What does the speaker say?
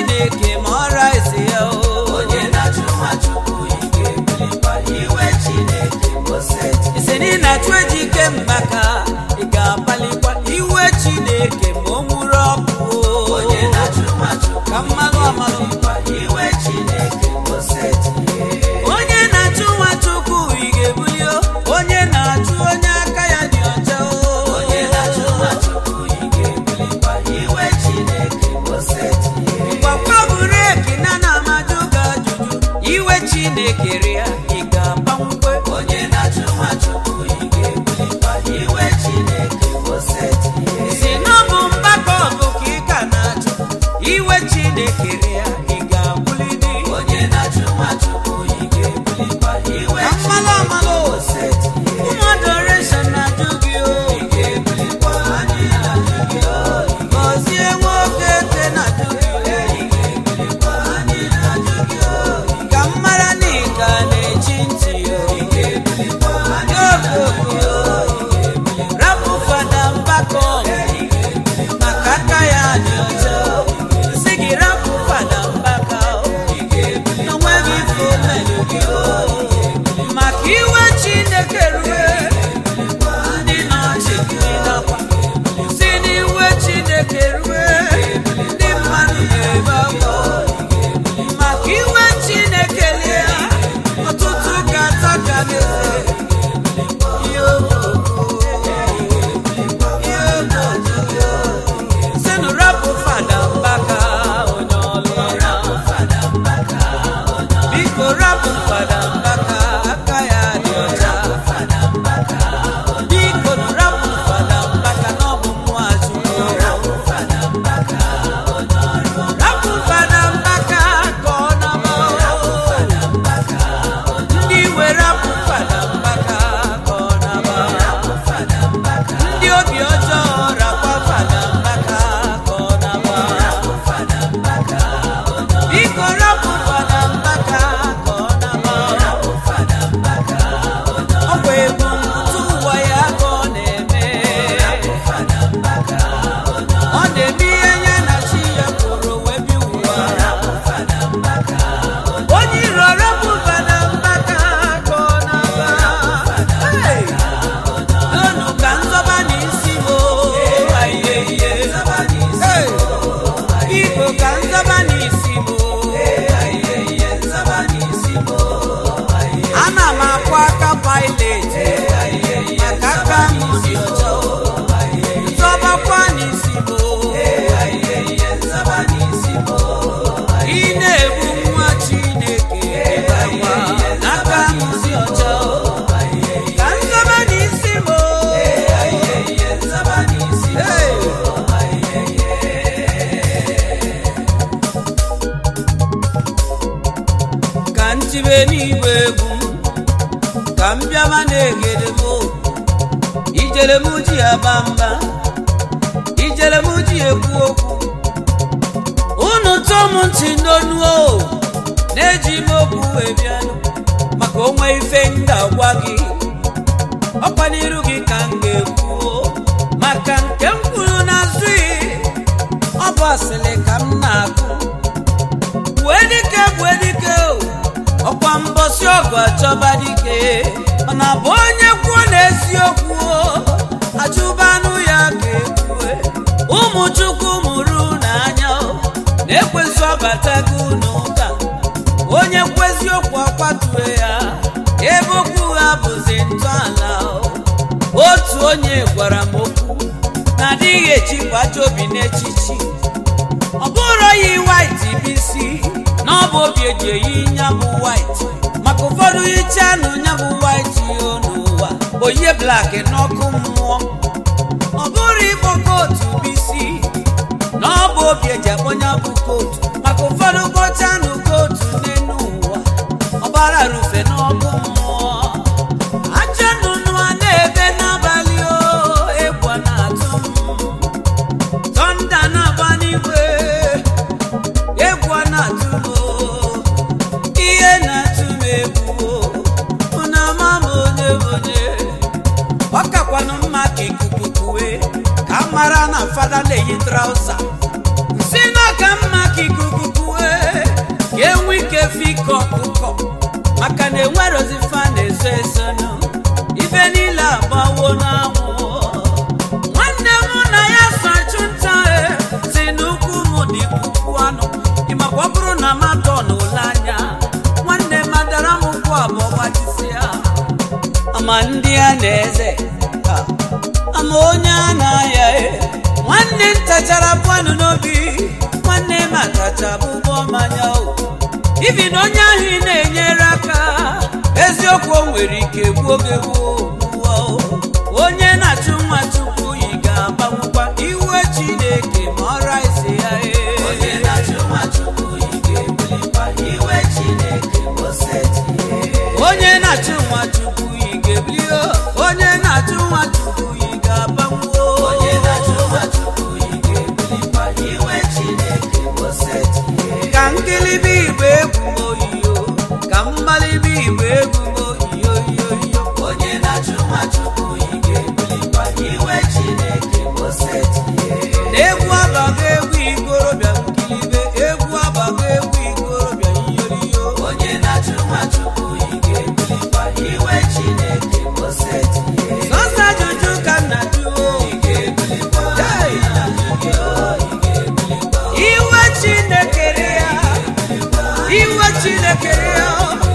chineke ma ọra ise ya o onye na-achụ nwa chukwu ike na ike mgbaka na-ekere na tibe n'igwe egwu ka m bịama na-egede m ijele m ji aba mba ijele m ji ekwu okwu unu tụọ m ntị n'onu na-eji m okwu wee maka onwe ife ndị ga-agwa gị ọkwa n'iru gị ka m ga-ekwu maka nke m kwuru n'azụghị ọ bụ asịrị ka m na-akụ wee dike agwa chọba dike ọ na bụ onye kwuo n'eziokwu achụbanụ ya ka ekwue ụmụ chukwu mụrụ n'anya na-ekwezi ọbatago n'ụka onye kweziokwu okwu ya ebe okwu ha bụzi ntọala otu onye gwara m okwu na adịghị echikwacha obi n'echichi ọ bụrụ wit na ọ bụ obi eji eyi nyabụ white maka ụfọdụ iche anụ nyabụ white yo n'ụwa oyie blak n'ọkụ mmụọ ọ bụrụ ịkpọ kootu bisi na ọ bụ obi eji akpọ nyabụ kootu maka ụfọdụ kpọcha anụ kootu n'enu ụwa ọbara rufe yi trauza si na ka mma ka ikuku kue ka enwe ike fiko ọkụkọ maka na enwerozifa na-eso eso nụ ife niile agbawo n'anwụ nwanne m na ya sachụnta e, si n'ukwu m dị puku anụ ịmakwa ọ bụrụ na matọ na ụlọ anya nwanne madara m ụkwụ abụọ gbajisi ya ama ndị a na eze ama onye a na ndị ntachara pụanụ n'obi nwanne m akacha bụ ụgbọ mmanya ibi na onye ahụ ị na-enyere aka eziokwu o nwere ike gbuo oge gbuo onye na-achụ nwa quero